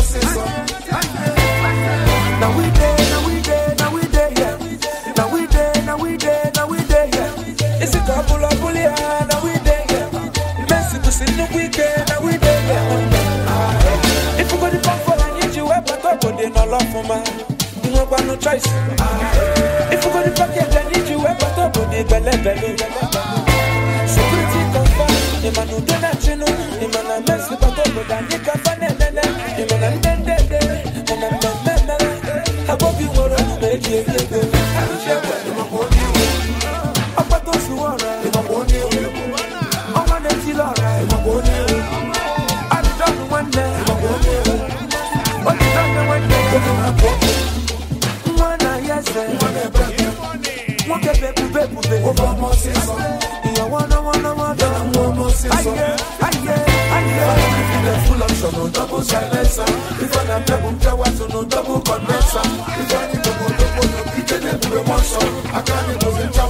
Now we there, now we there, now we there, yeah. Now we there, now we there, now we there, yeah. Is a pull up, pull Now we there, yeah. Messi to no weekend, now we there, If you go to pump for an injury, but they no love for man. You no got no choice. If you go to pocket, I need you, we back up, but they belly belly. double silencer. If I am double power to no double condenser. If I need double, go double, no kitchen, it will be monster. I can't even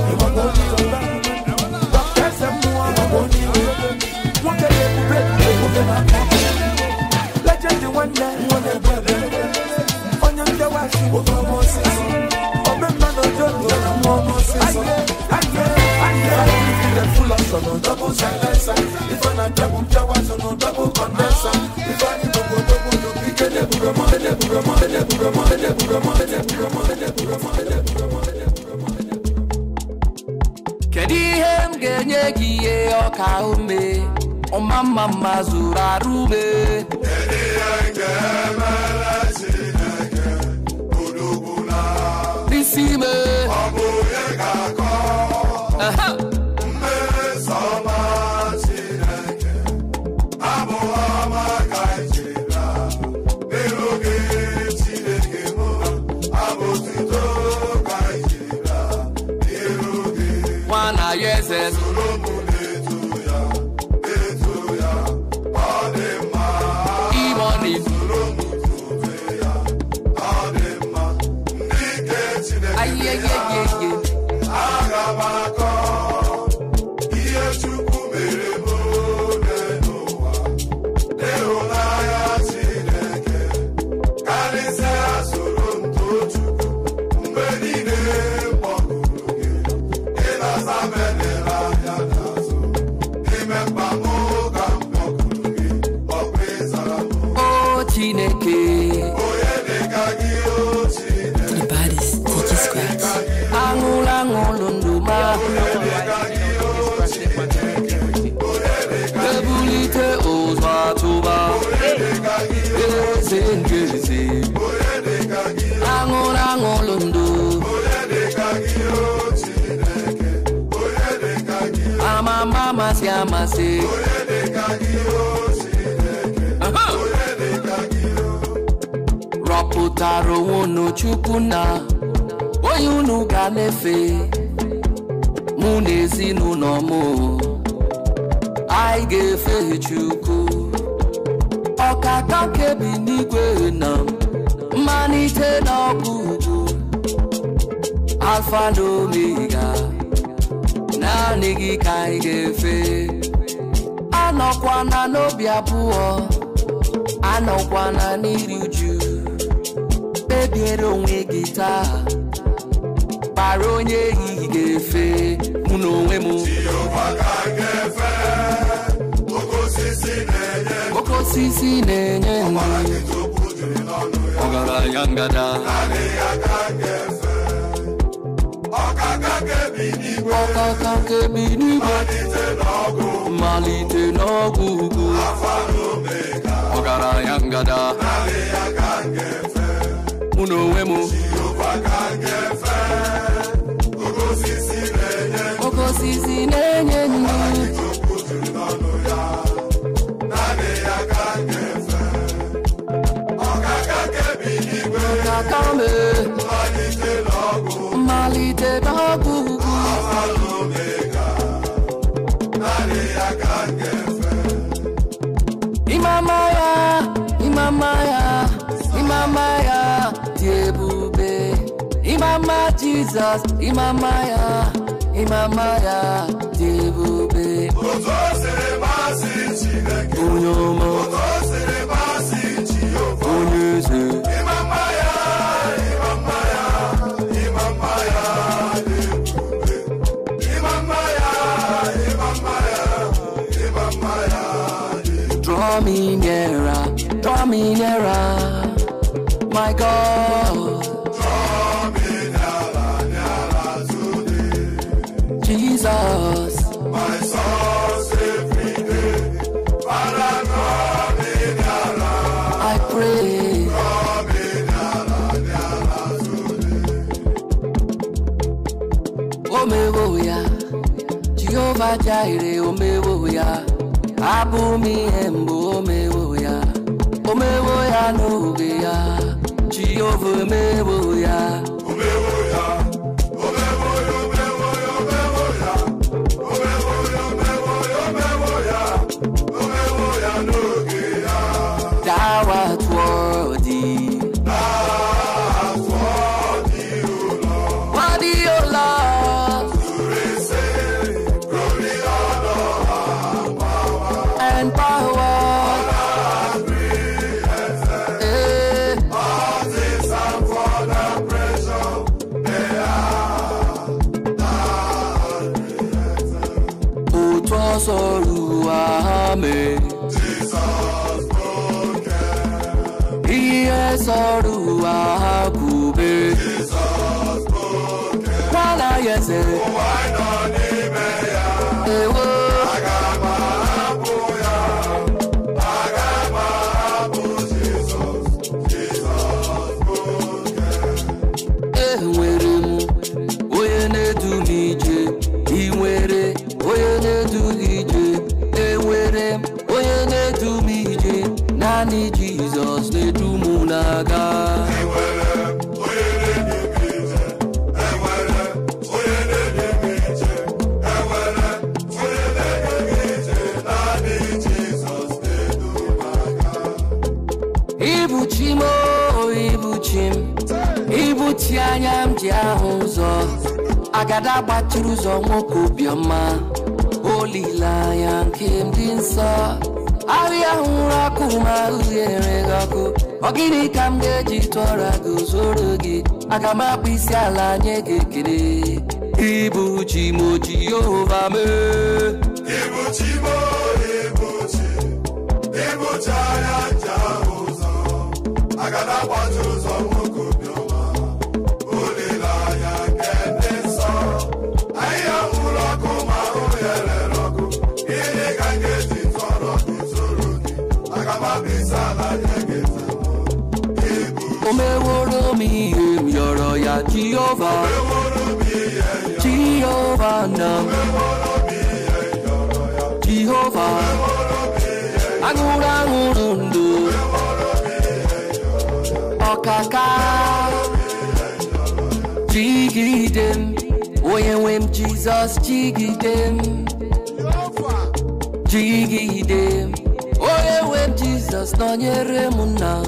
alfa na omega naanị gị ka anyị ga-efe na n'obi abụọ anọkwana n'iri uju kpebiere onwe gị taa kpara onye ehihie ga-efe mụ na onwe m oke osisi na-enye ọgaranya ngada Akaka kebini malite n'ọgwụgwụ ọgaranya ngada mụ na onwe m Jesus, Imamaya, Imamaya, Dibube. Onyoma, Onyeze. Imamaya, Imamaya, Imamaya, Dibube. Imamaya, Imamaya, Imamaya, Dibube. Draw me nearer, draw me nearer, my God. Fajaire omewoya Abumi embo omewoya Omewoya no geya Jehovah mewoya ada gbachiri ụzọ nwoke obiọma olileanya nke ndị nsọ ahịa hụrụ ọkụ ma uhie enweghị ọkụ ọ gịnị ka m ga-eji tụọra gị zoro gị aga m akpụ isi ala nye gị ekele ibu chi m Yehova mee Jehovah, Jehovah now, Jehovah, Agura Urundu, Okaka, Jigidem, Oyewem Jesus, Jigidem, Jigidem, Oyewem Jesus, Nonyere Muna,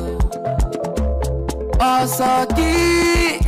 Osaki.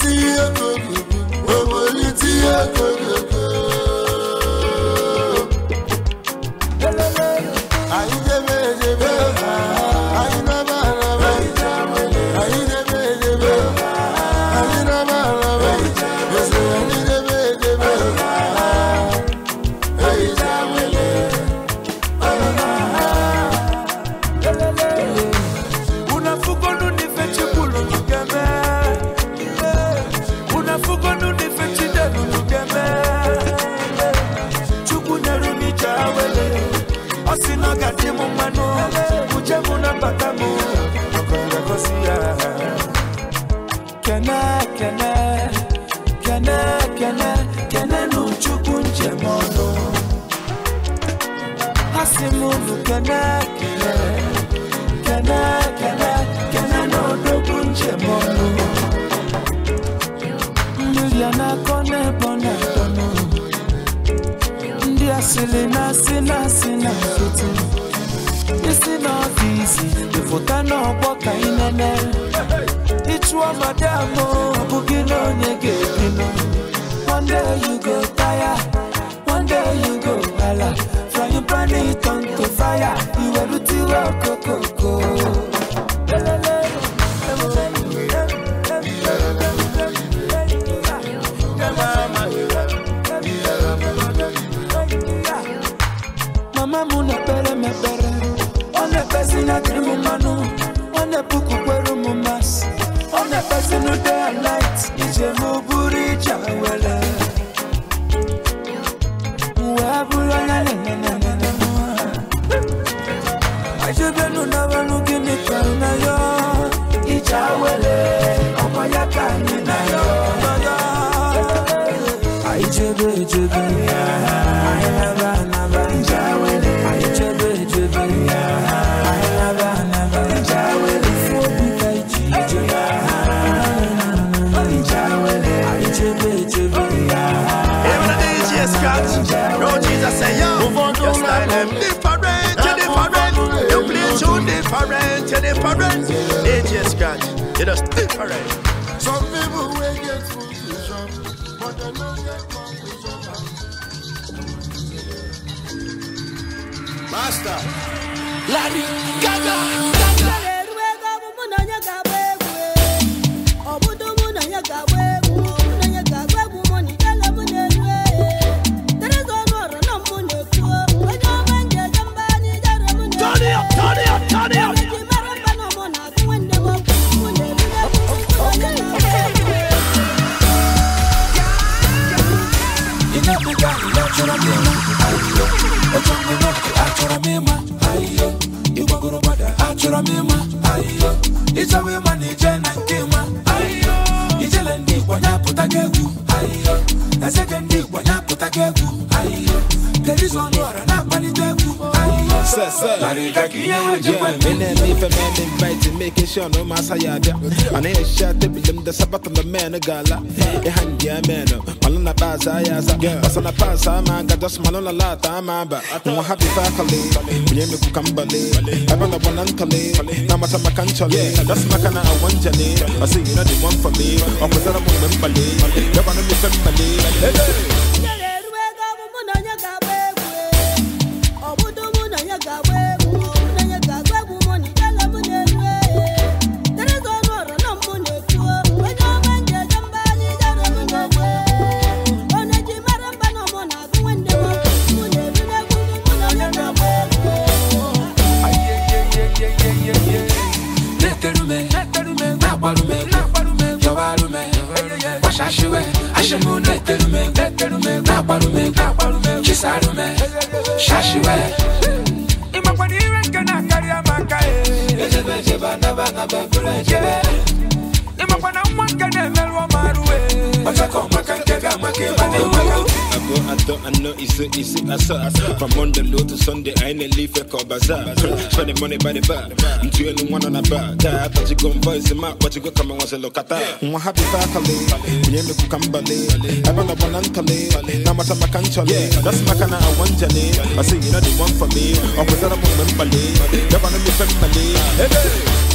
tí yẹ kò gbogbo owó yìí tí yẹ sina sina foto isi n'ọfịs ịfụta n'ọgbọ ka ị nene ịchụọ madam ọbụghị na onye ga-ebi nọ one day you go tire one day you go hala From your planet on to fire iwerute iwe okoko but dem Master. Larry Gaga. Gaga. Yeah, me and me for men inviting, making sure no matter ya da. And I shot the bill the sabat on the man a gala. A hand ya man, Malona Baza Yaza. Basana Pasa, man, got just Malona Lata, Mamba. I'm happy faculty, Yemi Kukambale, I want a one uncally, Namata Makanchale, that's Makana Wanjale. I see you know the one for me, or Pazana Mumbali, Governor Mumbali. Hey! to easy as up. From Monday low to Sunday, I ain't leave leaf a call bazaar. Spending money by the bar. I'm two and one on a bar. That but you go and voice him out, but you go come and once a look at that. I'm happy for Kale. We ain't look at Bale. I'm a one on Tale. Now what I'm a canchale. That's my kind of one jelly. I see you know the one for me. I'm with a woman Bale. Never know me from Bale. Hey, hey.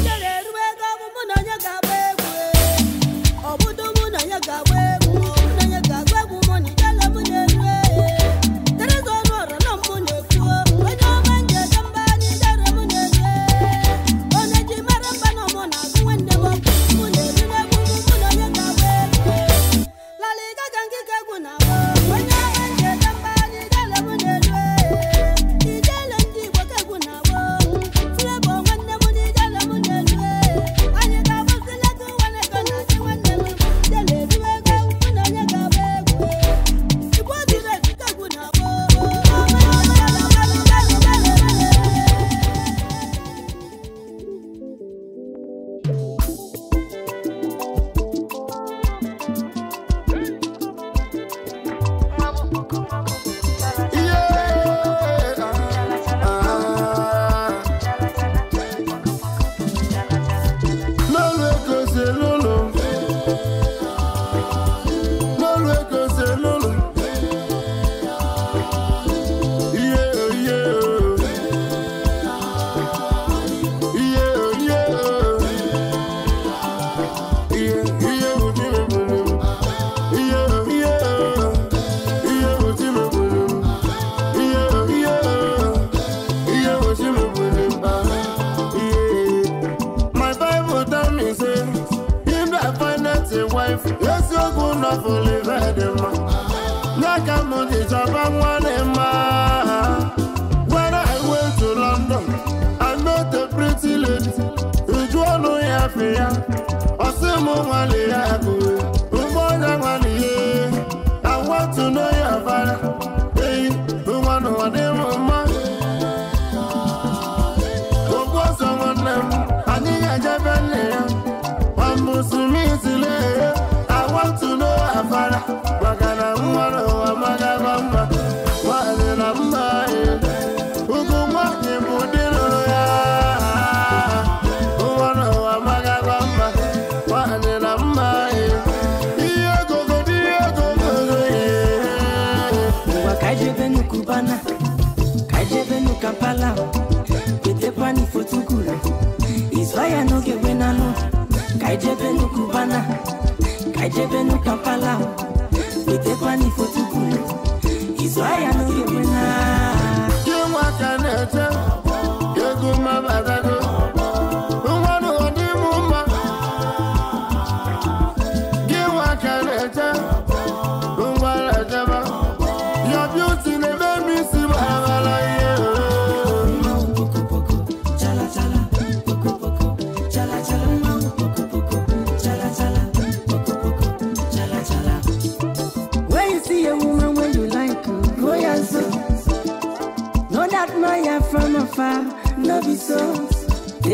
So I am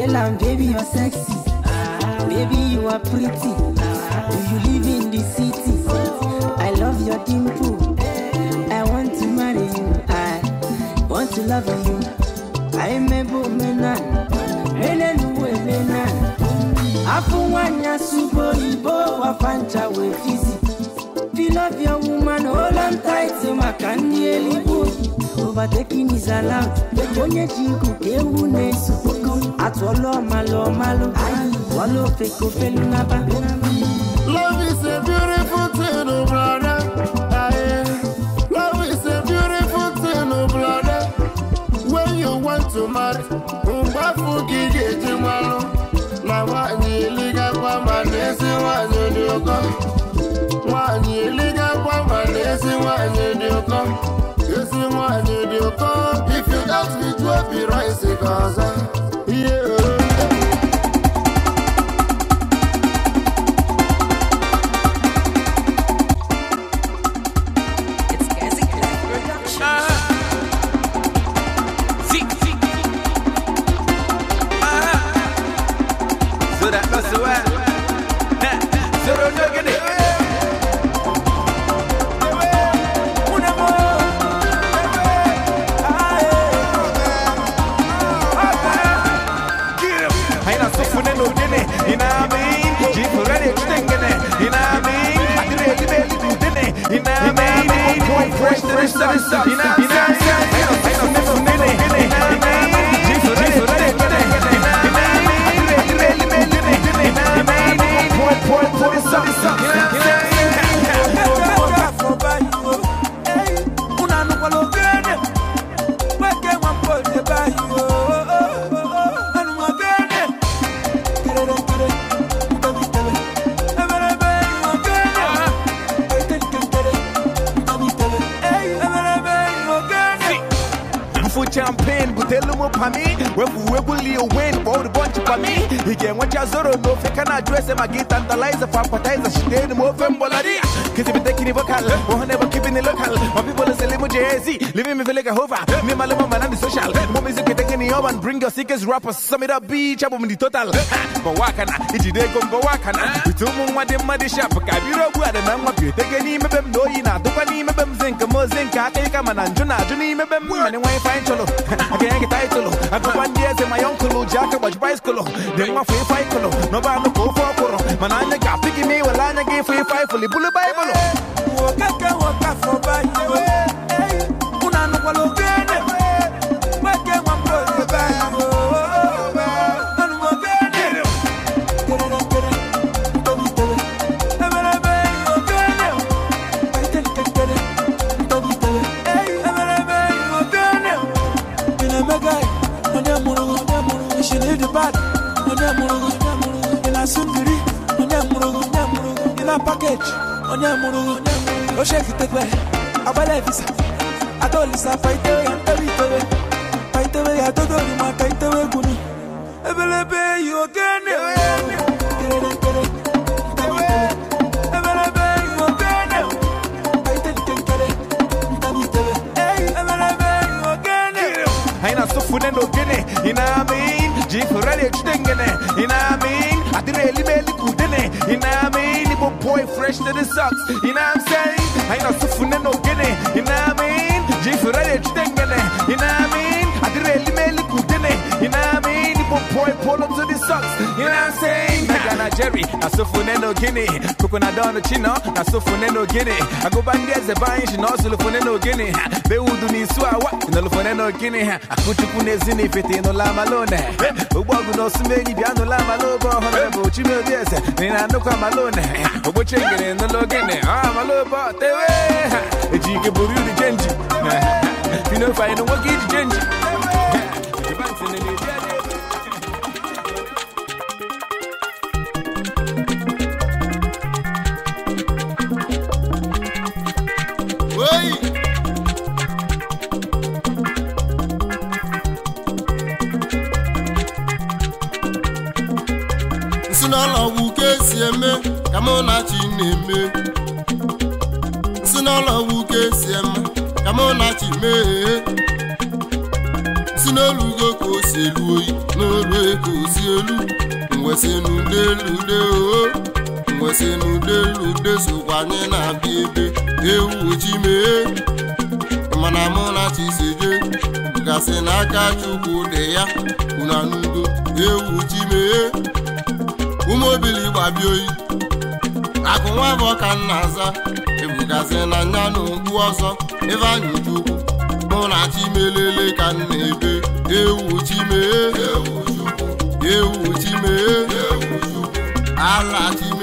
Tell baby, you're sexy. Baby, you are pretty. Do you live in the city? I love your dimple. I want to marry you. I want to love you. I'm a woman. Menenwelena. Afunwanya subo ibo wafancha we fizi. Feel love your woman, hold on tight to my candy elibu. Overtaking is allowed. The onye jiku kewu ne subo. atụọlụ malụ malụ wala ofeke ofelu naba Love is a beautiful thing, oh brother. Love is a beautiful thing, oh brother. When you want to marry, umbafu gige jimalo. Na wanyi liga kwa manesi wanyo dioko. Wanyi liga kwa manesi wanyo dioko. You see wanyo dioko. If you ask me to be right, because you win bold me. He mi ige mwacha zoro no fika na dress ma get tantalizer for appetizer she did move and bolari kizi be taking vocal oh never keeping the local People say, Limo JZ, living me feel like a hover. Me, my limo, man, and the social. More music can take any urban. Bring your sickest rappers. Sum it up, beach, up in the total. But what can I? It's a day come, but what can I? We two moon, what them, muddy shop. Kabiro, what and I'm up. You take any of them, no, you know, do any of them, zinc, mozink, I take a man, and Juna, Juni, me, them, women, and why find cholo. I can't get title. I go one day to my uncle, Jack, watch bicycle. Then my free fight, no, no, no, go for a poro. Manana, picking me, well, I'm a gay free fight, fully bullet Bible. Walk up, walk up for Bible. Onyamuru, no shake it away. Our life is a dolisa fight away and every day. Fight Ebelebe, you again. Funendo gene, you know what I mean? Jif ready to dengene, you know what I mean? I did really, really good, you know what I mean? a boy fresh to the socks. You know what I'm saying? I ain't no suffering no guinea. You know what I mean? Jay Ferrari, you think You know what I mean? I did really make it You know what I mean? a boy pull up to the socks. You know what I'm saying? na Jerry, na sofune no Guinea. na dono chino, na sofune no Guinea. I go back there, the buying, she knows lufune no Guinea. They would do ni suawa, no lufune no Guinea. I put you pune la malone. Ubogu no sumeni, biano la malobo, honorable Chimil Diaz, Nina no malone. Ubo chingin, no login, ah, malobo, tewe. Jigaburu the genji. You know, if I genji. mee si n'elu ugo ka o si elu oyi n'olu ego si elu mwesịnụ elu de o mwesịnụ delu de sokwa anyị na-abịa ebe ewu ji mee mana mụ na chiseje gasị n'aka chukwu dị ya una n'udo ewu ji mee ụmụ obili oyi akụ nwa bụ ọka nna aza ebugazi na nya n'okpu ọzọ ebe anyị chukwu ahụ na chimelele ka m na-ebe ewu chimee ewu chimee ala chimee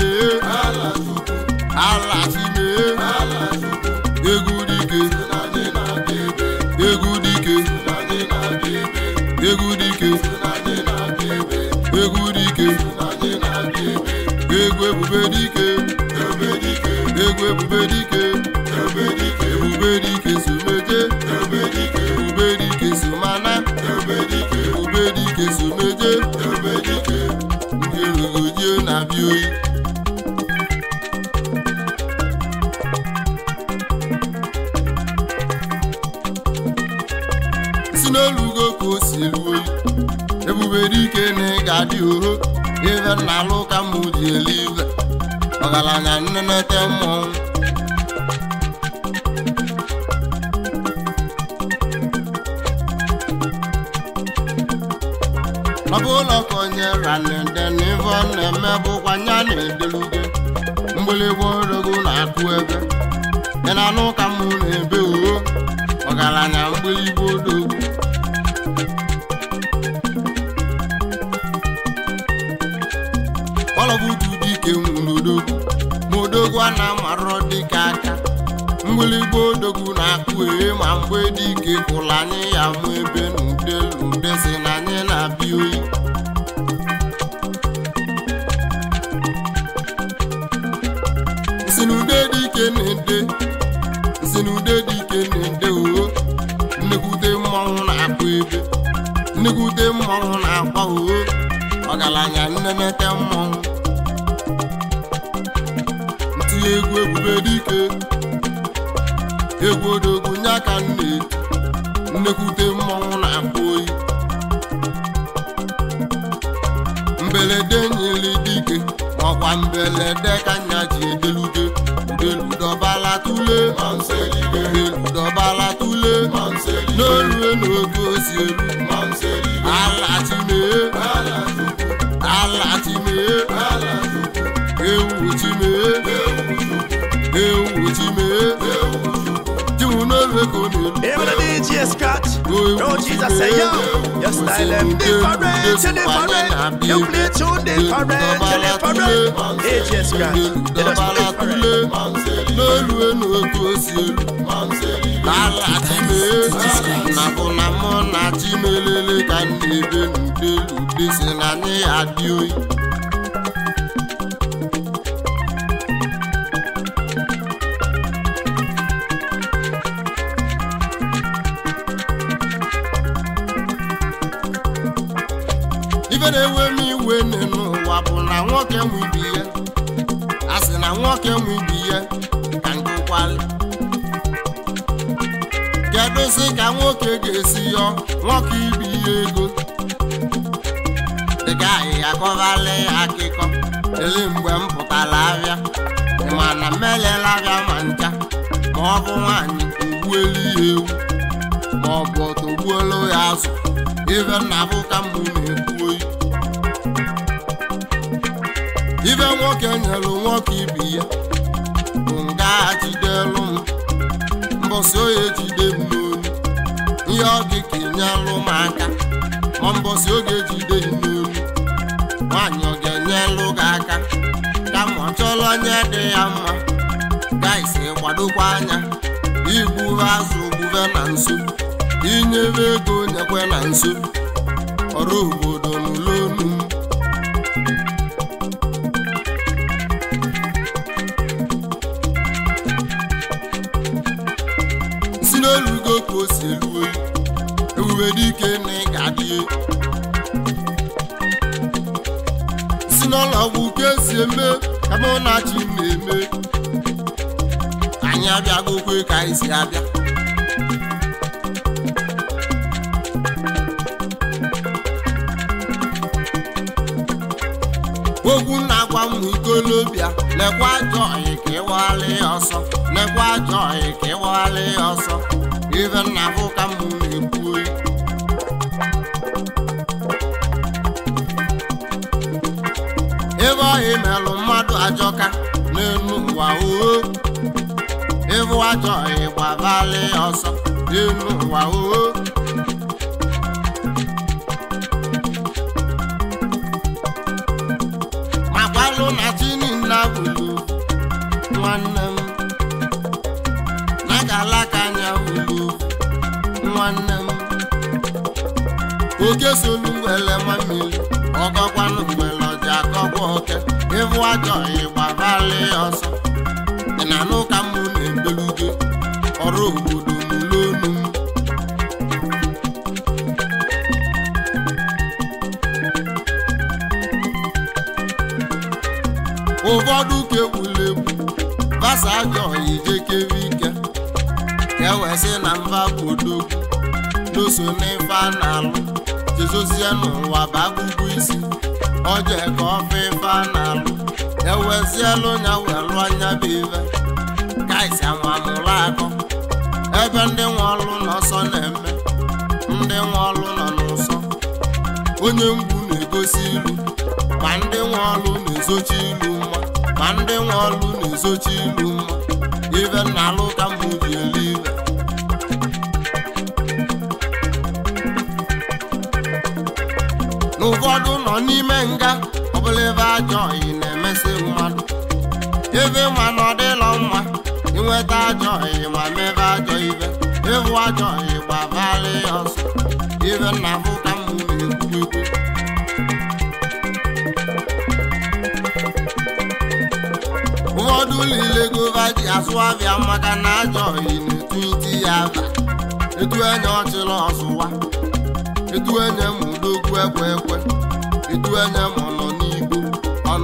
nwere ike na ị ga-adị uho ibe nna alụ elu ọgaranya nne ọ bụ ụlọ ka onye ranede na na-eme bụkwa nya na-edeluge mgbịlịgba na-akụ ebe ị na-anụ ụka mụ na-ebe uho ọgaranya dịka aka mgbịlịgba odogwu na-akpụ ma mgbe dike kwụla anyị ya mụ ebe nụ nne nnekwute mmọnwụ na-akpụ oyi mberede nyere dike makwa mberede ka nya ji edelude udeludọbala tule udeludọbala tule n'orue n'oge osi elu alatimee alatimee ewu timee ewu timee Even the DJ scratch. No Jesus say yo. Your style them different, you different. You play too different, you different. DJ scratch. They just play different. Ala chime, na bona mona chime lele kan debe nde lude sinani adioi. nwoke nwe ya na nwoke nwe ya ka nke kedụzi ka nwoke ga-esi yọ nwoke ibi ya ego dịka ahịhịa ya akịkọ ele mgbe m pụtara abịa mana m elela abịa ma ncha ma ọ bụ nwaanyị ogbuelu ya ewu ma ọ bụ ya azụ ibe nna bụ mbụ na-ekwu oyi nwoke nyelu nwoke ibi ya bụ nga jidelụ m mbọsị oye jide m n'olu ihe ọ dị ka ịnyelụ m aka ma mbọsị oge jide m n'olu nwaanyị ọ ga-enyelụ gị aka kama ọ chọrọ onye dị ya mma gaisi kwadokwa anya igbuwe azụ gbuwe na nso inyere ego nyekwe na nso ọrụ obodo nwere ike na ị ga-adị si n'ụlọọgwụ ka esi eme ka mụ na chi na-eme anyị abịagokwe ka anyị si abịa okwu na-agwa m ikolobịa lekwa ajọ ọyị ka ịwagharị ọsọ lekwa ajọ ọyị ka ịwagharị ọsọ ife nna bụ ka m imelụ mmadụ ajọka n'elu ụwa oo ịbụ ajọ ịgbabali ọsọ n'elu ụwa oo makwalu na chinina bulu nwanne m na galaka anya bulu nwanne m oke solu wele nwammiri ọnwụ ajọ ịgbarali ọsọ dị na n'ụka ka mụ na-ebelugo ọrụ obodo n'ụlọonu m ụfọdụ ka egwula basa ajọ ijekere ike ka ewee na mba bodogwu doso n'ife a na-alụ jezozie n'ụwa bụ akụkọ isi ọjọọ ka ọfa ife a na-alụ ewezielu nya wee anya bụ ive kaisi anwa mụrụ akụ. ebe ndị nwe ọlụ n'ọsọ na-eme ndị nwe ọlụ nọ n'ụsọ onye mgbu na-egosi ilu ma ndị nwe ọlụ na-ezochi ilu mma ma ndị nwe ọlụ na-ezochi ilu mma ive na alụ ka mbụ elu ive n'ụfọdụ nọ n'ime nga ọbụla ebe ajọ ọyị na-eme mmadụ ebe ma na ọ dịlọ mma inweta ajọ ihe ma mebe ajọ ibe ịhụ ajọ ihe gbabara ya ọsọ ibe nna m ka m na-ekwu ụfọdụ niile gova ji asụ abịa maka na ajọ ihe na-etu iti ya aba etu enye ọchịla ọsụwa etu enye m udogwu ekwe ekwe etu enye m nọ n'igbo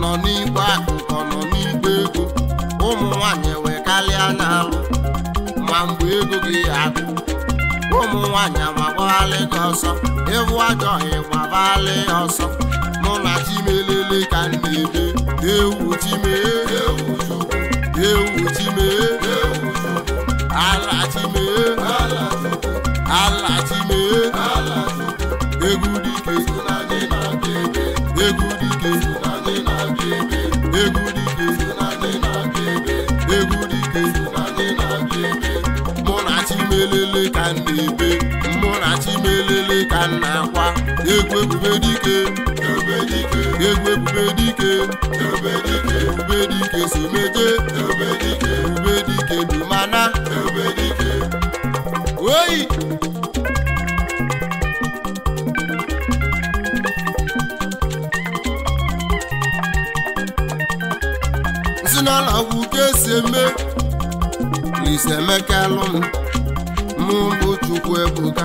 nọ n'igwe akụ nọ n'igwe ego ụmụ nwanyị wee karịa n'alụ ma mgbe ego gị agụ ụmụ nwanyị amagbalị gị ọsọ ịhụ ajọ ịgbabalị ọsọ mụ na chimelele ka m na-ebe ewu chime ewu chime egwu ebube dike egwu ebube dike ebube dike someje ebube dike dumana oyi si n'ala kwụ ka esi eme Lise Emeka lụ m mụ bụ ebuka.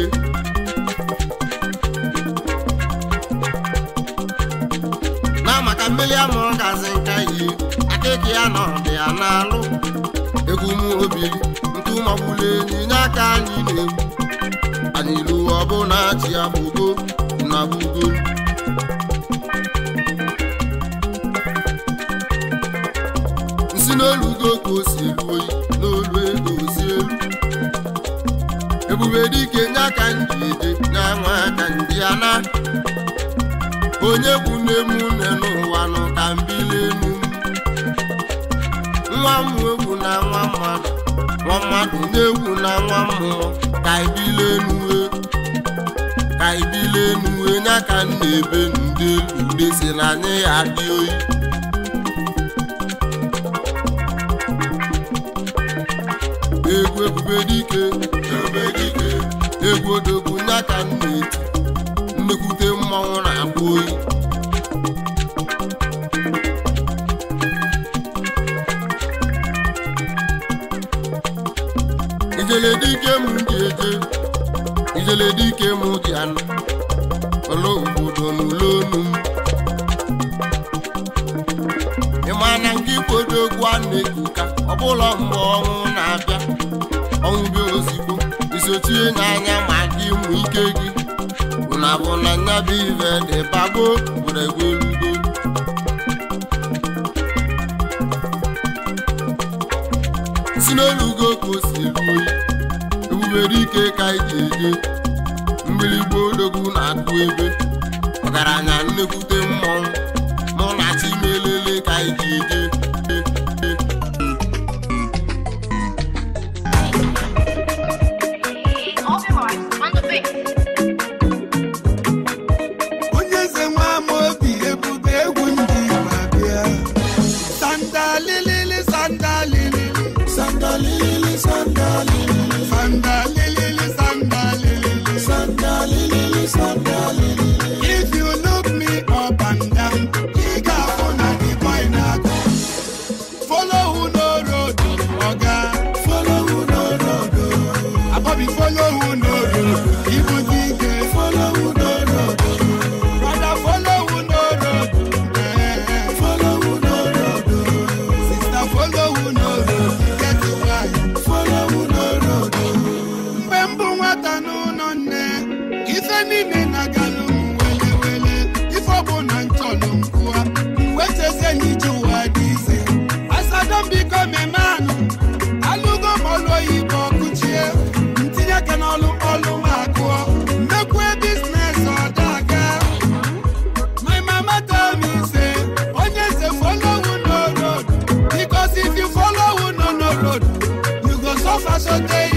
ọhịa na ọdịya na-alụ egwumobi ntụmọgbụla enyinya aka anyị na anyị lu ọbụna ji abụgo na bugo nsi n'olu ugo ka o si elu n'olu ego elu ebube dike nye aka ndị na nye aka ndị ana onye bụ nne m nne n'ụwa ka m mmadụ na-egwu na nwa mmụọ ka ibile enue ka ibile enue nya ka nna ebe ndị ube si na anyị ya dị oyi egwu ebube dike egwu odogwu nya ka nna eti nnekwute mmanwụ na-akpụ oyi ijele dike m dị eje ijele dike m dị anụ ọlụ obodo n'ụlọ onu m ịma na nke ikwodo egwu a na-eku ka ọbụla mgbe ọnwụ na-abịa ọnwụ bịa ozigbo isochie n'anya ma gị mụ ike gị na abụ na nya bụ ive dị bago were gwelugo si n'elugo ka o si eru oyi nwere ike ka iji mmiri mgbịrịgba odogwu na-akụ ebe ọgaranya nnekwute mmọnwụ mụ na chi melele ka iji eje faço sorteio.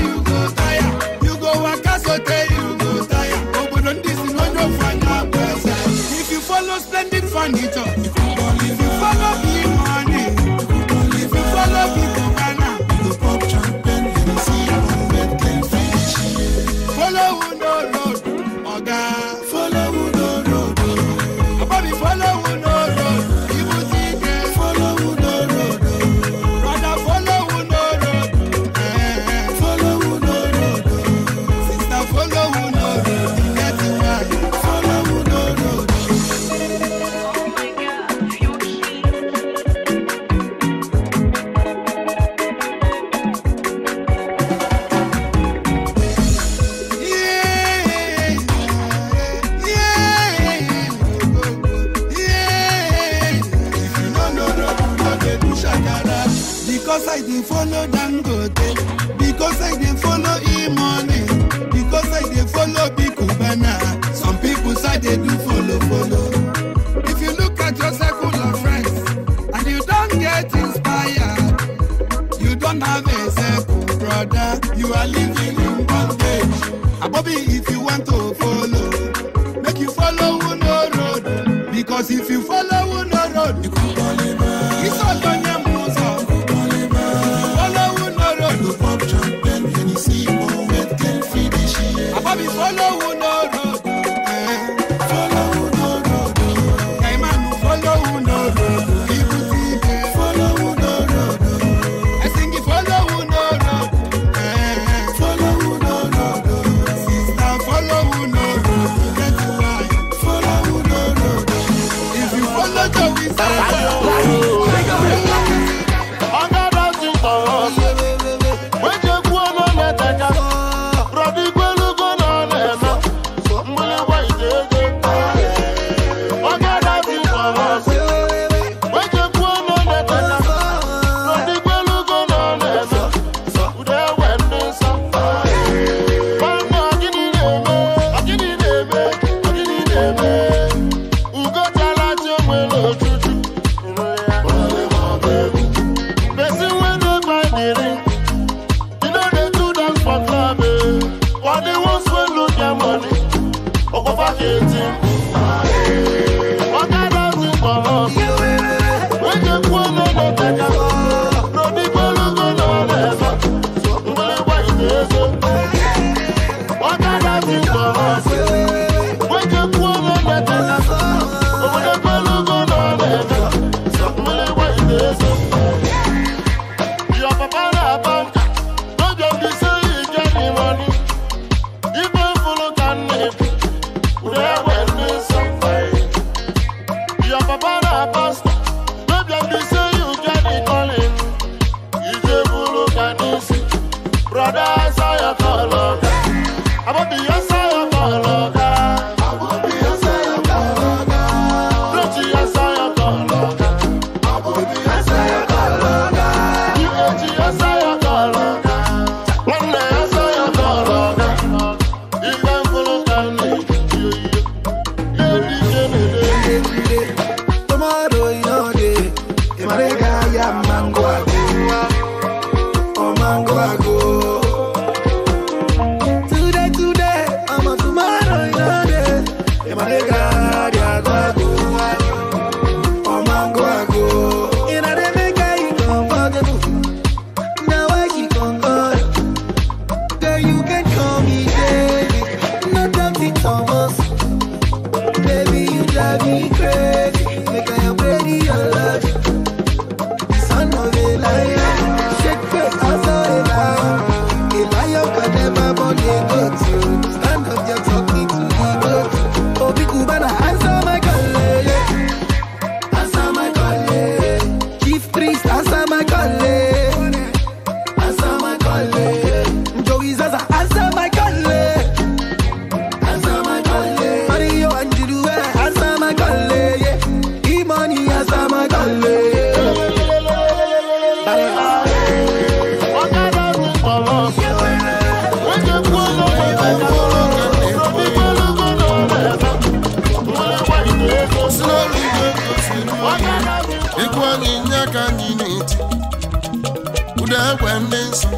ekwe ndị nsọ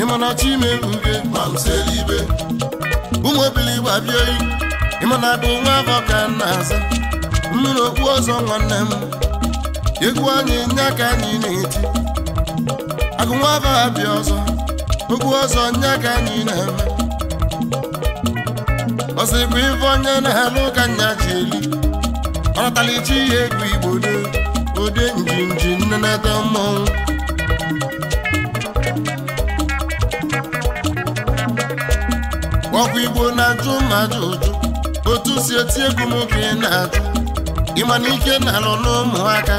ịmana chime mbe ma mseli ibe ụmụ ebili gbabie oyi ịmana bụ nwa afọ ka aza mmiri okpu ọzọ nwanne m egwu anyị nye aka anyị na-eti agụ nwa afọ ọzọ okwu ọzọ nye aka anyị na-eme ọsịkwa ife onye na-alụ nya ji eli ihe egwu igbo ode njinji nnenata ọkwa igbo na-ajụ mmadụ ụjụ otu si eti egwu m ị na-ajụ ịma na ike na-alụ n'ụmụaka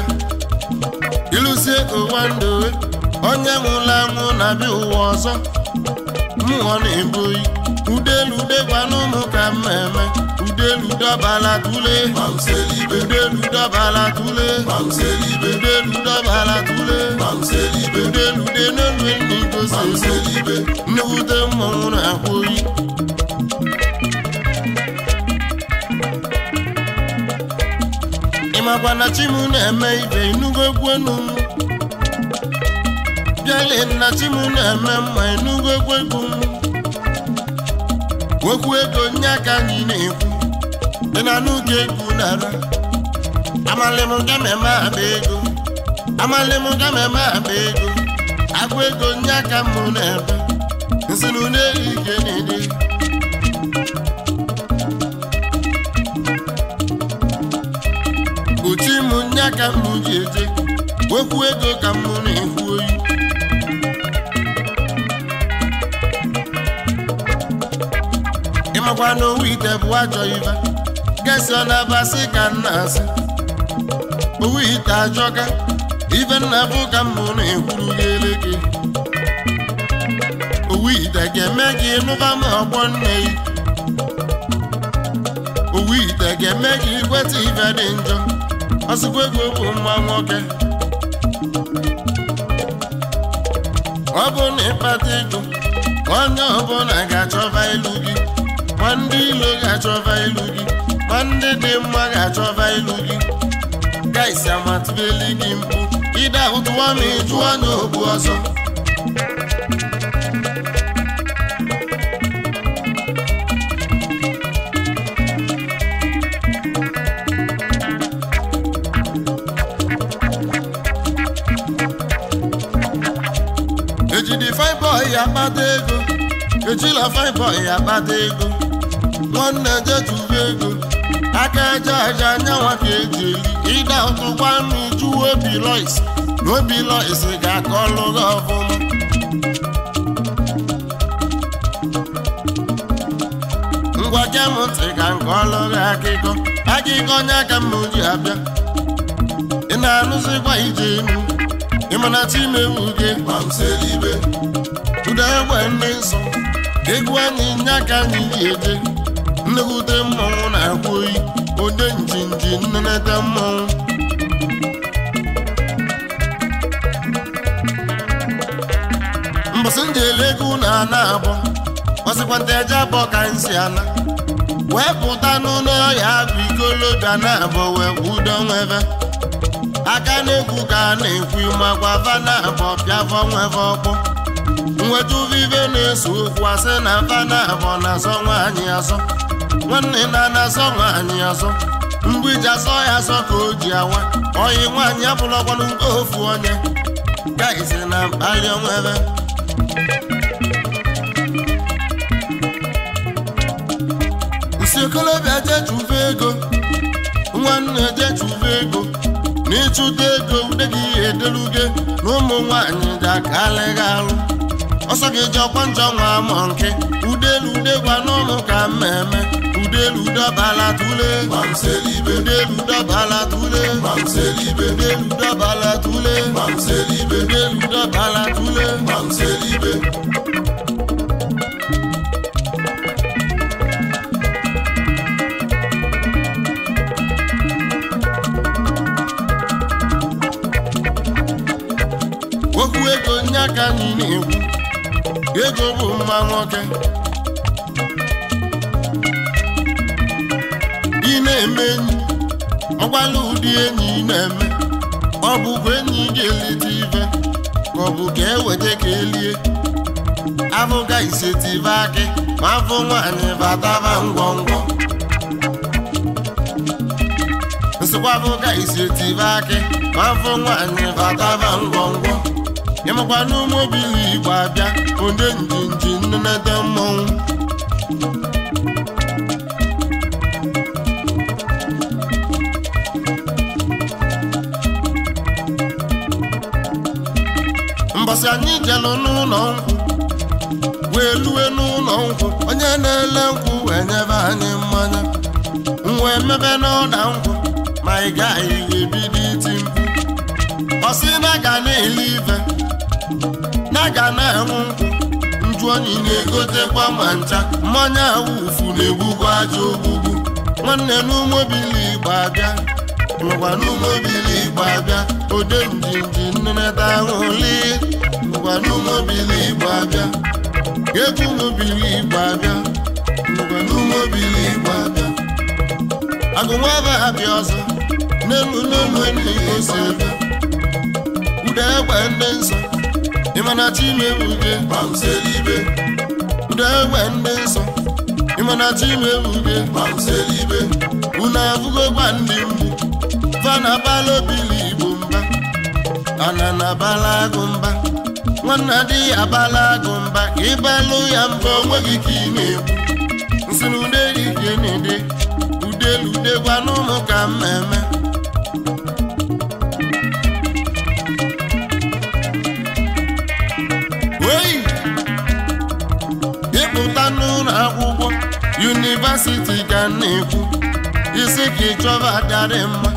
ịlụzie ụwa ndowe onye nwụrụ anwụ na-abịa ụwa ọzọ mmụọ na-ebughị udelu degwa n'ụmụ ka mma eme udelu dọbala tule udelu dọbala tule udelu dọbala tule udelu de n'olu ndị gosi nnukwu mmọnwụ na-ahụ oyi makwa na chi m na-eme ibe inugo egwenu bịale na chi m na-eme mma inugo egwegwu okwu ego nye aka anyị na-ekwu dị na n'oge egwu nara amalịm gameme aba ego amalịm gameme aba ego agwa ego nye aka m na-ebe nsinu na-eri ike na-ede ka m ji eje wekwu ego ka m na oyi ịmakwa na owu ite bụ ajọ ibe gesi ọ na ka n'asị. owu ite ajọga ibe nna ka m na-ekwuru gị ele owu ite ga-eme gị nụba ọgbọ nne gị owu azụkwa egwu okwu mma nwoke ọ bụ na ịkpata ego onye ọbụla ga-achọba ilu gị ma ndị ilo ga-achọba ilu gị ma ndị dị mma ga-achọba ilu gị gaisi amatụbeli gị mpụ ịdahụtụwa ma ị jụọ n'ogbu ọzọ ejila fine boy akpata ego nwanne jejuwe ego aka eje aja anyanwa ka eje eri ịda ụtụ gwanụ ju obi lois na obi lois ga-akọ ọlụ gị ọfụma ngwa gem ntị ka nke ọlụ gị akịkọ akịkọ onye aka mma oji abịa ị na-anụzikwa ije enu e na timewu gị ma m ibe ụda egbe ndị nsọ egwu anyị nya ka anyị ji eje nlekwute mmọnwụ na-akwa oyi onye njinji nneneta mmọnwụ mbọsị m ji na ana kpọsịkwa ọsịkwanta eje abụọ ka anyị si ana wee pụta n'ụlọ ọhịa bụ ikolobịa na abụọ wee kwudo nwebe aka na-ekwu ka a na-ekwu makwa va na abụọ bịa vọ nweve ọkpọ vive na-eso okwu asị na afo na-azọ nwaanyị azọ nwanne na na-azọ nwaanyị azọ mgbe iji azọ ya azọ ka o ji awa oyi nwaanyị abụlọkwana nke ofu onye gaizi na mkpali onwebe nsi okolobịa jechuve ego nwanne jechuve ego na ego ude gị edeluge na ụmụ nwaanyị ga-akarịghị arụ O sake jow panjow wamanke, O delou de wanon mok ameme, O delou da balatule, Mam selibe. ego bụ mma nwoke ị na-eme enyi ọgwala ụdị enyi ị na-eme ọ bụkwa enyi ga-elite ibe ka ọ bụ ka eweta ka elie afụga isetive akị ma afọ nwaanyị bataba ngwongwo nsịkwa isetive nyemakwa n'ụmụ obili igbo abịa onye na nnenede mmọnwụ mbọsị anyị jelụ n'ụlọ nkwụ wee lue n'ụlọ nkwụ onye na-ele nkwụ wee nyebe anyị mmanya wee mmebe n'ọda nkwụ ma ị gaghị ebido iti mkpu ọ na ga a na-anwụ nkwụ nju oyi na-egotekwa ma ncha mmanya awụfu na-egbugo aja ogbugbu nwanne n'ụmobili igbo abịa nụkwa n'ụmobili igbo abịa ode njinji nneneta ahụli nụkwa n'ụmobili igbo abịa egwu mobili igbo abịa nụkwa n'ụmobili igbo abịa agụnwa ebe ha bịa ọzọ n'elu n'elu enyi ose ebe ude egbe ndị nsọ Imanatime ouden pa mse libe Ode wende son Imanatime ouden pa mse libe Ona fugo bandi ouden Fana balo bili bumba Anana bala gumba Wanadi ya bala gumba Ibalo yambo wagi kine Nsen ouden ijenide Ode lude gwanou mokameme yunivasiti ga na-ekwu isi ka ị chọba adịarị mma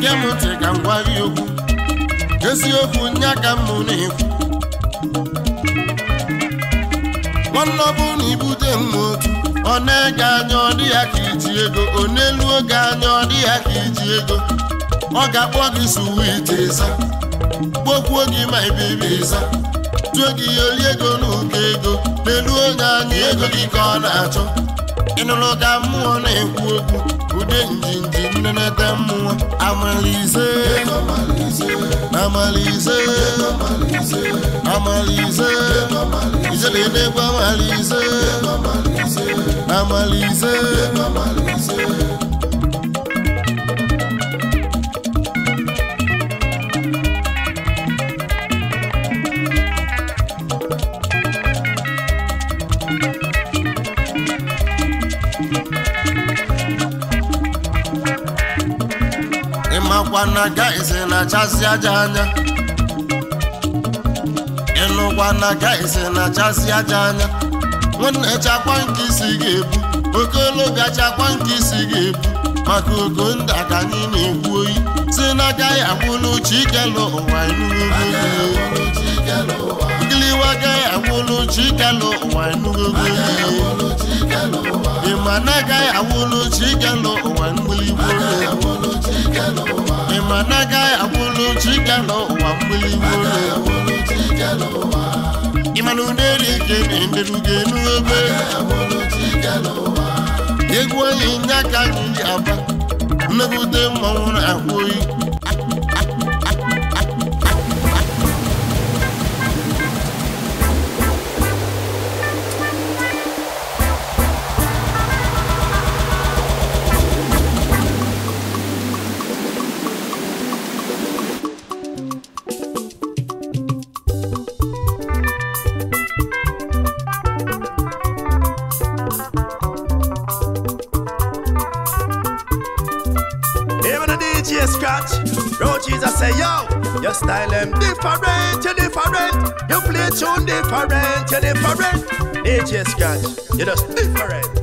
kemụtri ka m gwa gị okwu eziokwu nya ka m na-ekwu nwanne na ibute mma otu ọ na-ege anya ọ dị ya ka iji ego ọ na-elu oge anya ọ dị ya ka iji ego ọ ga-akpọ gị suwiti ịza kpokwuo gị ma ibibi ịza tuo gị ya ego n'ụkọ ego na-elu onye anya ego gị ka ọ na-achọ ịnụrụ ka mmụọ na-ekwu okwu ụdị ude njinji nnenete mmụọ amalize amalize amalize na egwu amalize amalize ịnụkwana ise na-achasị aja anya ịnụkwana guys na-achasị aja anya nwanne chakwa nke isi ga-ebu okologa gachakwa nke isi ga-ebu maka ogo ndị ka anyị na-ekwu oyi si na agaghị akwụlụ ike ikelu ụwa inugo gịliwaga awụlụ chikelu ụwa enugogo ị ma na agaghị awụlụ chikelu ụwa mgbiligbo ị ma na agaghị awụlụ chikelu ụwa mgbiligbo ịmana ụderi ke na-enderugo enugogo egwu anyị nye aka gị aba mmegide mmanwụ na ahụ oyi different. just catch, you just different.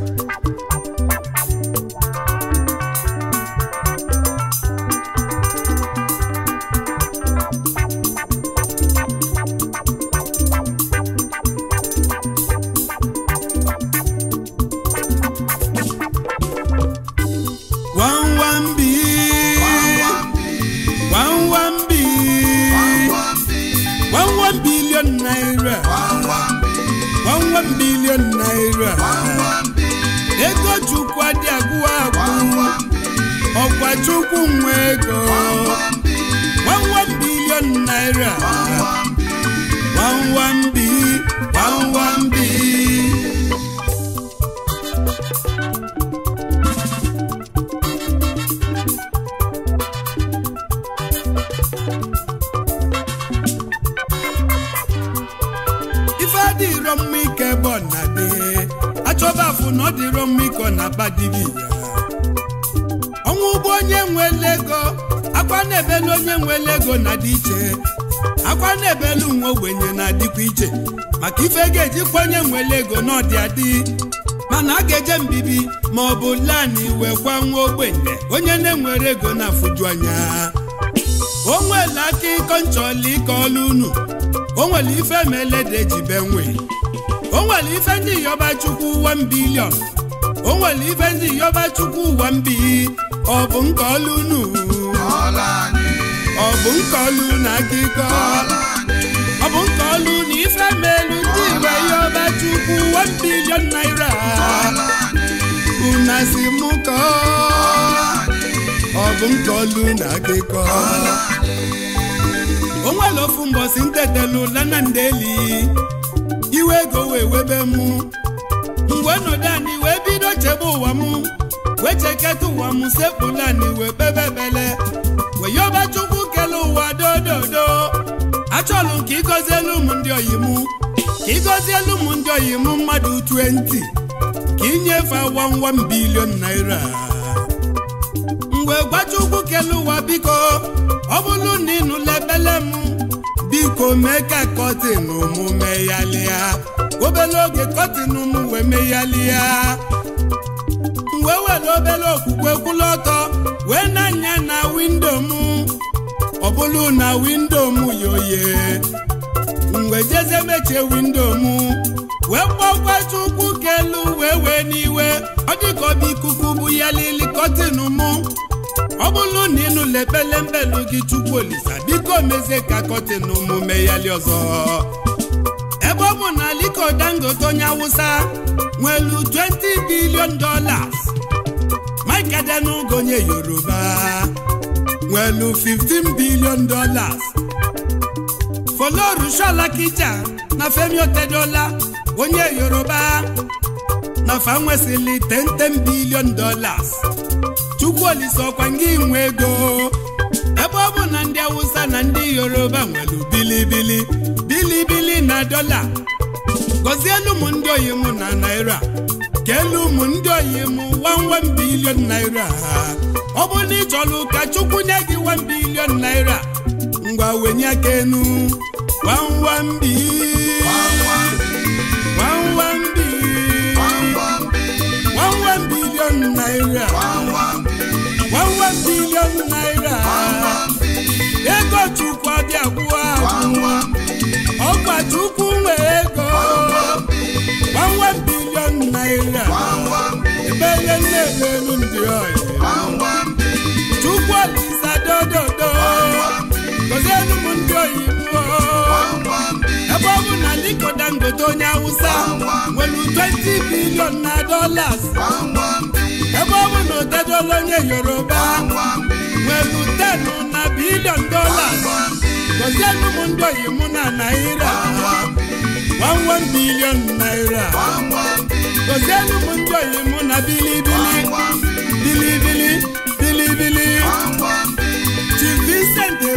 ọ dịrọ mma ịkọ ọnwụ ụgbọ onye nwere ego akwa na-ebelu onye nwele ego na dị iche akwa na-ebelu nwa ogbenye na-adịkwa iche maka ife ga kwa onye nwele ego na ọdị adị mana a ga-eje mbibi ma ọ bụ lani wee kwa nwa ogbenye onye na-enwere ego na-afụju anya o nwere aka ịkọ nchọli ka ọlụ unu o nwere ife mele dị eji be nwee o nwere ife ndị yọba chukwu 1 bilion o nwere ife ndị yọba chukwu 1 ọ bụ ọ bụ na ọ bụ na ife ndị yọba chukwu 1 bilion naira si ọ bụ na akụkọ o nwere ofu iwe ego wee webe mụ, mgbe nọdụ anị wee bido chebe ụwa m wee cheketa ụwa m sekpụla wee kpebe ebele wee yọba chukwu kele ụwa dododo achọlụ ka elu m ndị oyi mụ ka elu m ndị oyi m mmadụ 20 ka ịnyefe 11 bilion naira mgbe gbacha ugwu kele ụwa biko ọ bụlụ na ịnụla nụla ebele m biko mee ka kọtin mụ meghalịa obere oge kọtin m wee meghalịa wee were obere okwukwe kwụlụ ọtọ wee na-anya na windo m ọ bụrụ na windo m yoye mgbe jeze mechie windo m wee kpọkwata ukwu kelu wee wee n'iwe ọ dịka ọ ikuku bụ ya lili kọtịnụ mụ ọ bụrụ na mbe ekpelembelu gị Chukwu Olisa biko mezie ka kọtịn omume yali ọzọ ebe ọ bụ na Aliko Dangote onye Awụsa nwelu 20 billion dolas Mike onye Yoruba nwelu 15 billion dollars Folorunsho Alakija na Femi Otedola onye Yoruba na fa nwesịrị 10 chukwu olise ọkwa ngị nwe ego ebe ọ bụ na ndị awụsa na ndị yoruba nwere bilibili bilibili na dọla gọzielu m ndị oyi na naira keelu ụmụ ndị oyi mụ 1 bilion naira ọ bụ na ka chukwu nye gị bilion naira ngwa wenye aka enu bilion naira billion naira ego chukwu abịakwuo ahụ ọgba chukwu nwe ego 11 billion naira ebele na-elu ndị ọyị chukwu olisa dododo ndị oyibo ebe ọ bụ na Aliko Dangote onye Awụsa nwere 20 bilion na dollars ebe ọ bụ na Otedola onye Yoruba nwere 10 na bilion dollars gozienụ m ndị oyimụ na naira 11 bilion naira gozienụ m ndị oyimụ na bilibili bilibili bilibili Chief Vincent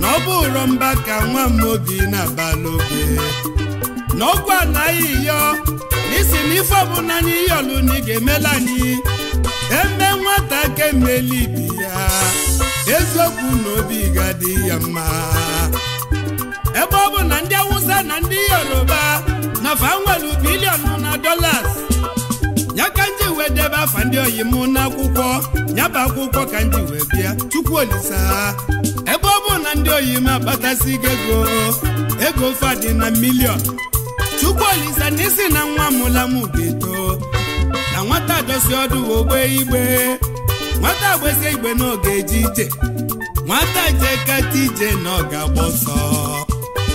na ọ mba ka nwa m obi na-abalụ oge n'ọgwụ anaghị yọ n'isi na ife ọbụla anyị yọlụ na ị ga-emela anyị eme nwata ga-emeli ibi ya eziokwu na obi ga-adị ya mma ebe ọ bụ na ndị awụsa na ndị yoruba na fa nwere biliọnụ na dọlas ya ka nji wee debe afa ndị oyi m n'akwụkwọ nyaba akwụkwọ ka nji wee bịa chukwu olisa na ndị oyim akpatasi gị ego ego fadị na milion chukwu olise na na nwa mụla m ga-eto na nwata dosi ọdụ ogbe igbe nwata gbezie igbe n'oge eje ije nwata jeketa ije na ọ ga ọsọ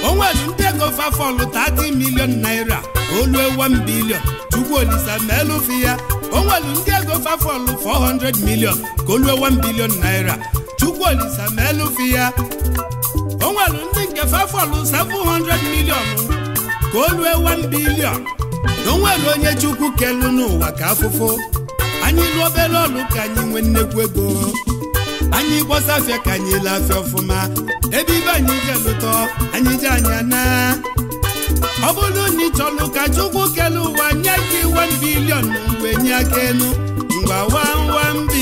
o nwere ndị ego fafọlụ 30 milion naira olue 1 bilion chukwu olise meelụfi ya o nwere ndị ego fafọlụ 400 milion ka olue 1 bilion naira Chukwu Olisa ma elufi ya o nwere ndị nke fefọlụ 700 milion ka o lue 1 bilion na o nwere onye Chukwu kelu n'ụwa ka afụfụ anyị lụọ obere ọlụ ka anyị nwee nnekwu ego anyị gbọsafịa ka anyị lee ọfụma ebe ibe anyị je lụtọ anyị je anya na ọ bụrụ na ịchọlụ chọrọ ka Chukwu kele ụwa nye gị 1 bilion mgbe nye aka elu mgbe wamwambi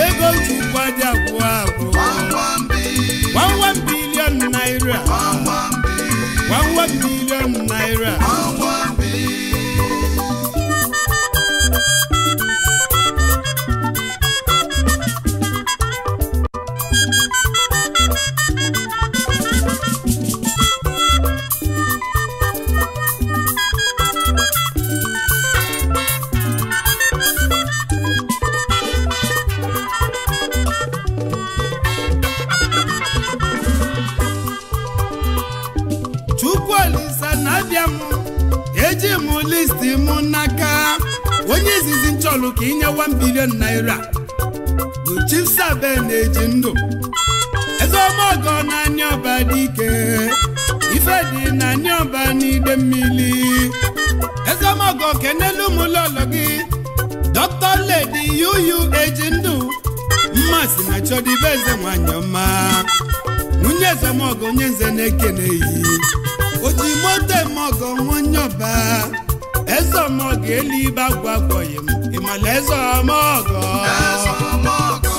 ego njikwa dị abụọ abụọ gbamgbam bilion naira gbamgbam bilion naira listi mụ n'aka onye izizi nchọlụ ka inye 1 bilion naira bụ chief sabe na-eji ndụ eze ọmọgọ na anya ọba dị ike ife dị na anya ọba n'ide mmiri eze ọmọgọ kenelu ụmụlọlọ gị dọkịta ledi yuyu eji ndụ mmasị na chọdịbe eze nwanyị ọma nwunye eze ọmọgọ onye nze na-ekene yi oji moto emeọgọ nwa onye ọba ẹ̀sọ́ ọmọ gẹ̀ẹ́lì bá gbàgbọ́ yẹn ìmọ̀lẹ́ ẹ̀sọ́ ọmọ ọ̀gọ́. ẹ̀sọ́ ọmọ ọ̀gọ́.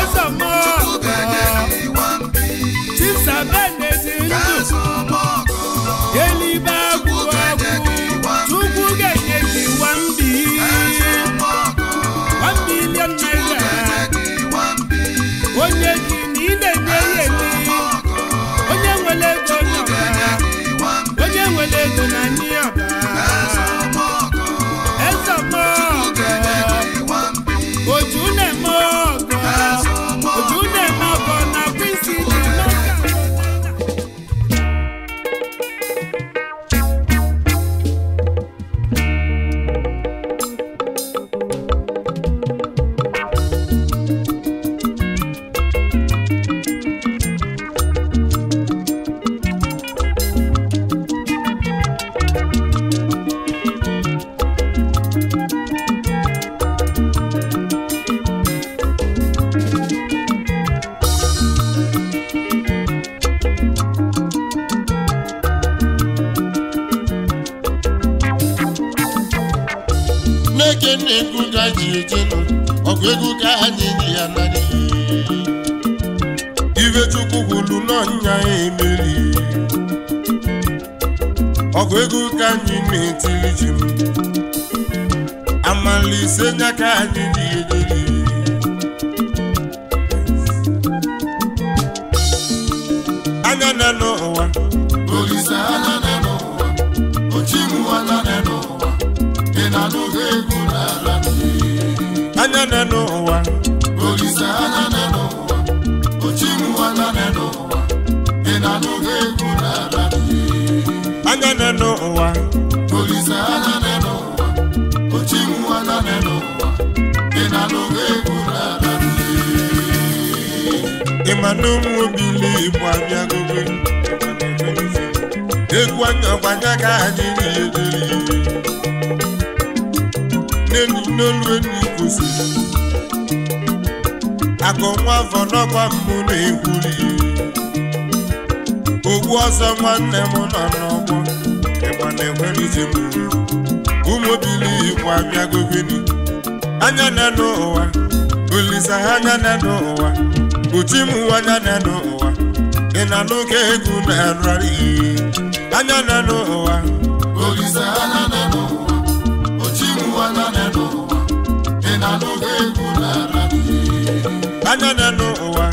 ẹ̀sọ́ ọmọ ọ̀gọ́. tí sàbẹ̀lẹ̀ ti ń dùn. ẹ̀sọ́ ọmọ anụmụbili bụ abịagogo egwu anyakwanya ka anyị na-edere n'enyi n'olu enyi kwụsịrị akọ nwa afọ n'ọkwa mbụ na-egwuri ogbu m nọ n'ọgbọ ịgbana ekwerụzi m bụ anya na n'ụwa olisa anya na mkpuchi m anya na n'ụwa ị na n'oge egwu na anya na n'ụwa anya na ụwa anya na n'ụwa ị na egwu na anya na n'ụwa anya na n'ụwa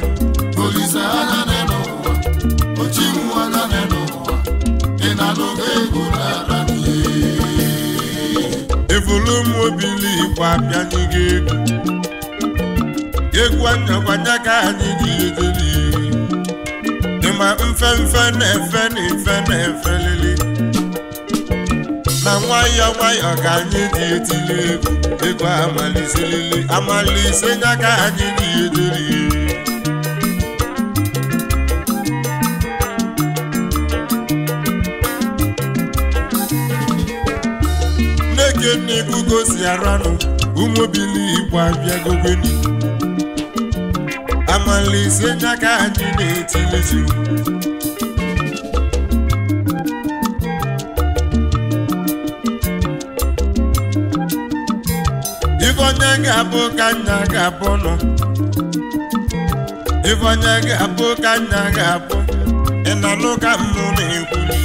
ochi m anya na n'ụwa ị na egwu na egwu anyakwanye ka anyị ga-edeli dịma mfe mfe na-efe na efe na-efe lili na nwayọọ nwayọọ ka anyị dị etili egwu egwu amaliselili amalise nya ka anyị dị edeli nne gị nne gosi aranụ ụmụbili igbo abịagogoni amalizie n'aka anyị na-etilizi ifeonye ga-abụ ka nna ga-abụ nọ ifeonye ga-abụ ka nna ga-abụ ị na-anụ ka mụ na-ekwuli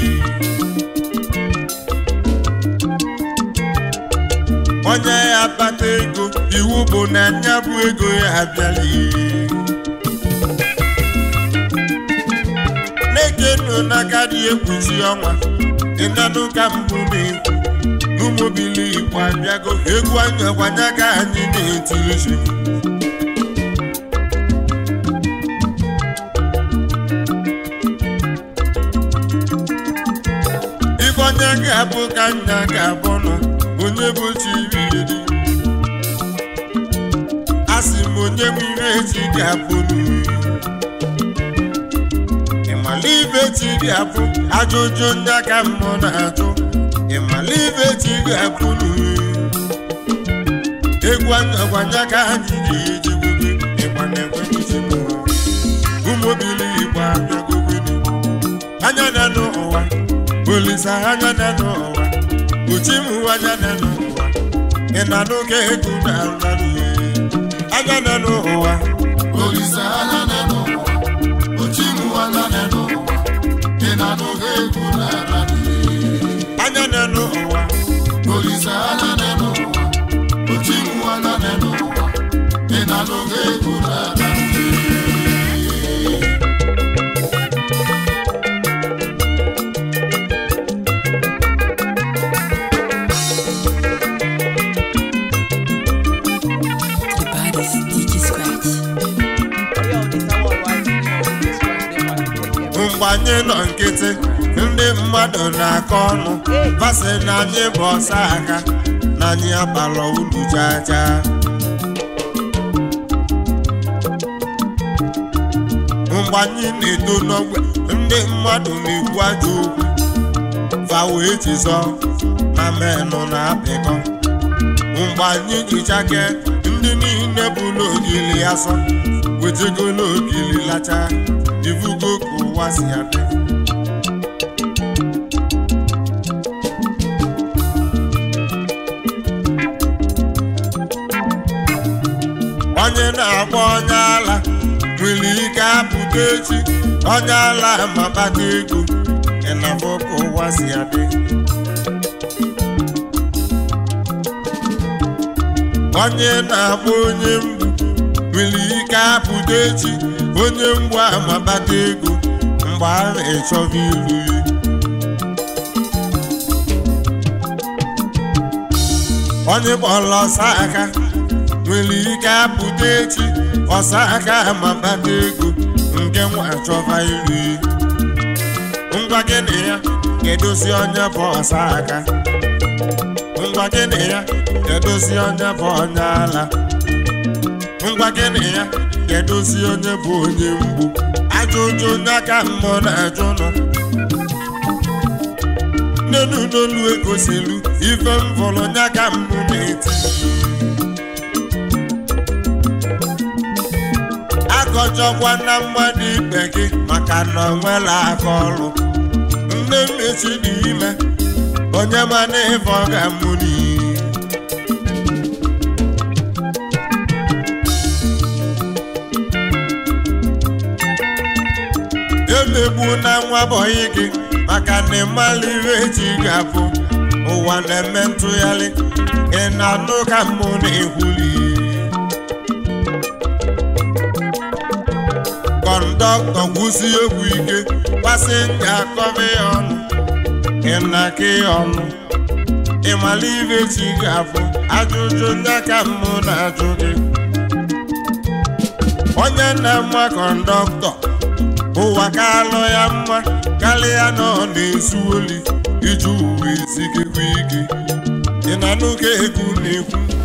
onye ya akpata ego iwu bụ na nya bụ ego ya abịala ihe ego na dị ekwuzi ọnwa ịnanụ ka mbụ na-ekwu n'ụmụbili igbo abịago egwu anya gwanye ka anyị na-etirizi ife onye ga-abụ ka nna ga-abụ nọ onye bụ chiriri asị m onye m ire echi ga-abụ n'uri ịmalibe tiri abụ ajụjụ ndị aka mmụọ na-atụ ịmalibe e tiri abụ e egwu agwanye aka ha jiri ejigbubi ịgba e na-enwe njigbu ụmụbili igbo abịagobere anya na n'ụwa olisa anya na n'ụwa uchimu anya na n'ụwa ị na n'oge ego na-arụ anya na n'ụwa olisa anya n'ụwa olisaala n'elu ụwa otiwụwala n'elu ụwa ị na-anụgo egwu n'ala mgbe anyị nọ nkịtị ndị mmadụ na-akọ ọnụ masị na anyị bụ ọsọ aka na anyị abalọ ulu jaja mgbe anyị na-eto n'ogbe ndị mmadụ na-ekwu ajọ okwu fawo echizọ na menụ na-apịkọ mgbe anyị jichake ndị niile bụ n'ogili asọ wetagolo ogili lacha ivugo ka ụwa si adị ego echi ala ego ụwa si adị onye na-akpọ onye mbụ nwere ike apụta echi onye mgbu amabata ego mgbe a na-echọba ilu ya onye kpọrọ ọsa aka nwere ike apụta echi ọsa aka ego nke m achọba iri ngwa gịnị ya ya edozi onye bụ ọsa aka ngwa gịnị ya ya edozi onye bụ onye ala ngwa gịnị ya ya edozi onye bụ onye mgbu ajụjụ aka mmụọ na-ajụ nọ n'elu n'olu egosilu ife m vụrụ nya mbụ na-eti akọchọkwa na mmadụ ibe gị maka na ọ nwela aka ọrụ nne mmesi n'ime onye mana ịfọ ga-amụ n'iyi emegbu na nwa bọyị gị maka na ịmala ihe eji ga ụwa na-eme ntụgharị ị na-anụ ka mmụ na-ehuli kọndọktọ gwụsi egwu ike pasenja ya ọnụ ịnaka ọnụ ịmala ibe chi ga ajụjụ ndị aka mmụ na-ajụ gị onye nna mma kọndọktọ ụwa ka alụ ya mma karịa ya nọ na-ezu oli iji uwe ezigigwa ike ị na ka na-ekwu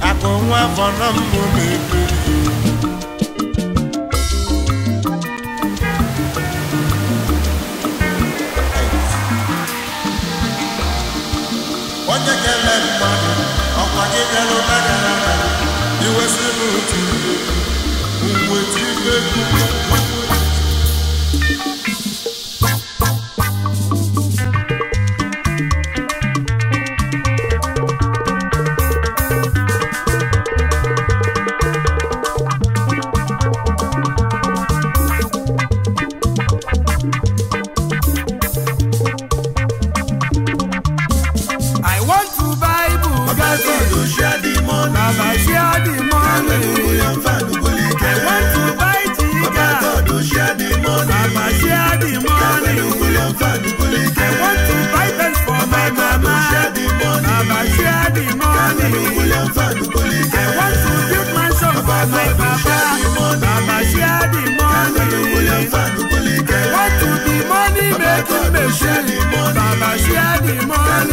akụ nwa afọ na mbụ na-ekwu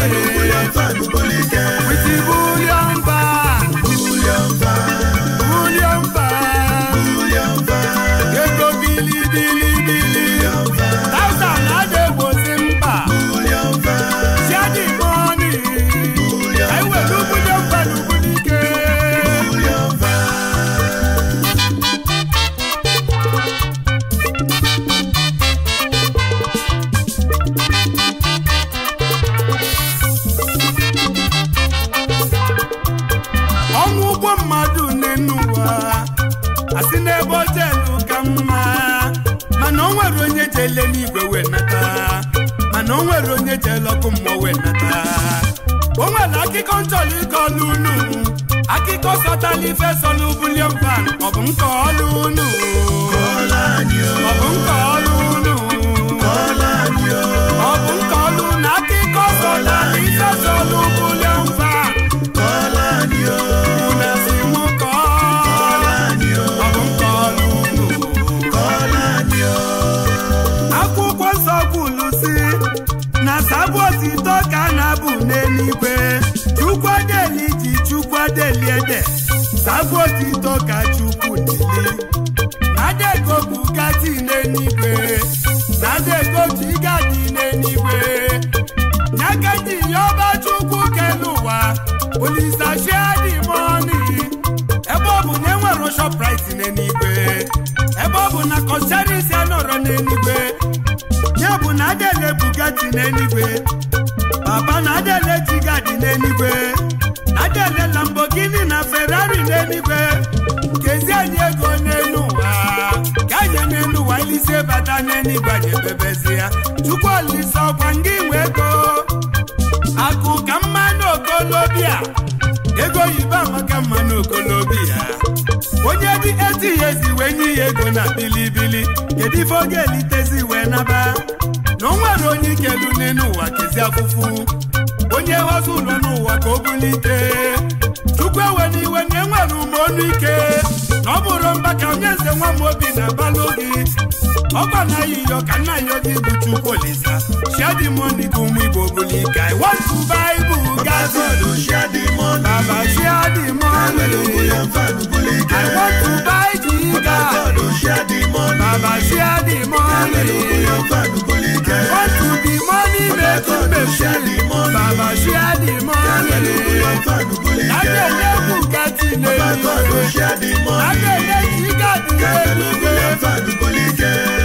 Guru I want to buy Bugatti. Baba Fado share the money. Baba share the money. Alelugule Fadugule Ike. I want to buy the Baba Fado share the money. Baba share the money. Alelugule Fadugule Ike. I want to be money making machine. Baba share the money. Alelugule Fadugule Ike. Lágbèlè Bugatti lè mi. Baba Fado share the money. Lágbèlè Jigadi lè mi. Alelugule Fadugule Ike.